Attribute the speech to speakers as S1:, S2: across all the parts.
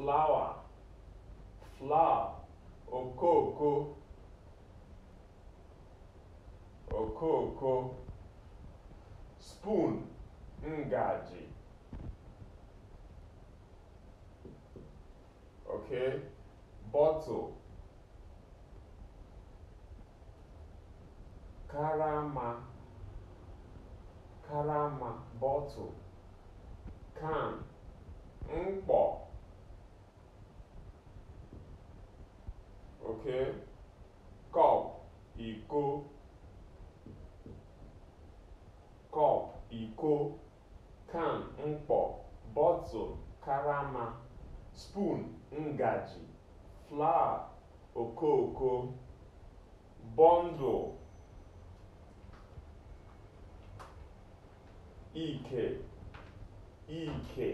S1: flawa flawa okooko okooko spoon ngaji okay bottle karama karama bottle can mkpọ oke kọp iko kọp iko kan mkpọ bọtụl karama spoon ngaji flawa okooko bọndụl ike ike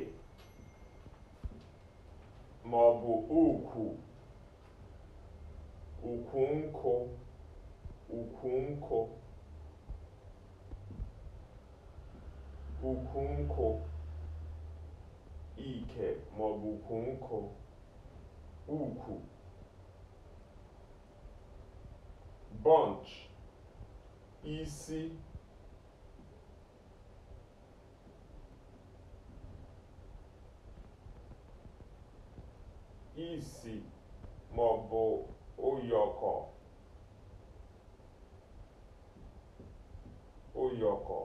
S1: ma ọ bụ ukwu Ukunko. Ukunko. Ukunko. Ike maọbụ ukunko. Ukwu. Bunch. Isi. Isi maọbụ ụyọkọ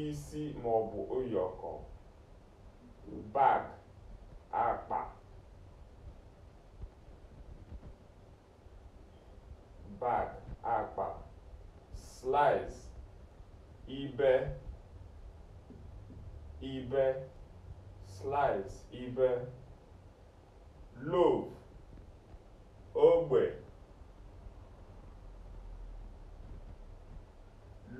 S1: isi maọbụ ụyọkọ bag akpa bag akpa slice ibe ibe slice ibe loaf ogbe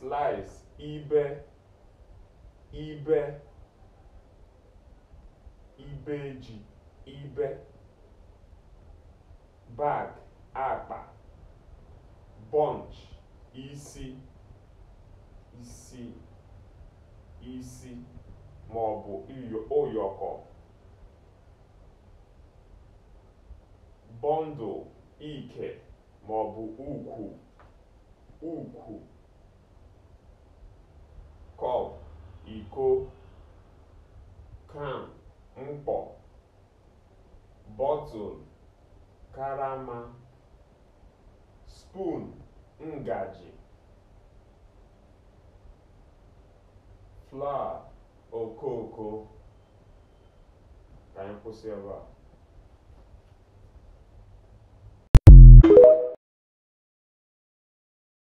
S1: slice ibe ibe ibeji ibe bag akpa bunch isi isi isi ma ọ bụ ụyọkọ bundle ike ma ọ bụ ukwu ukwu iko kan mkpọ bọtụl karama spoon ngaji flawa okooko ka anyị kwụsị ebe a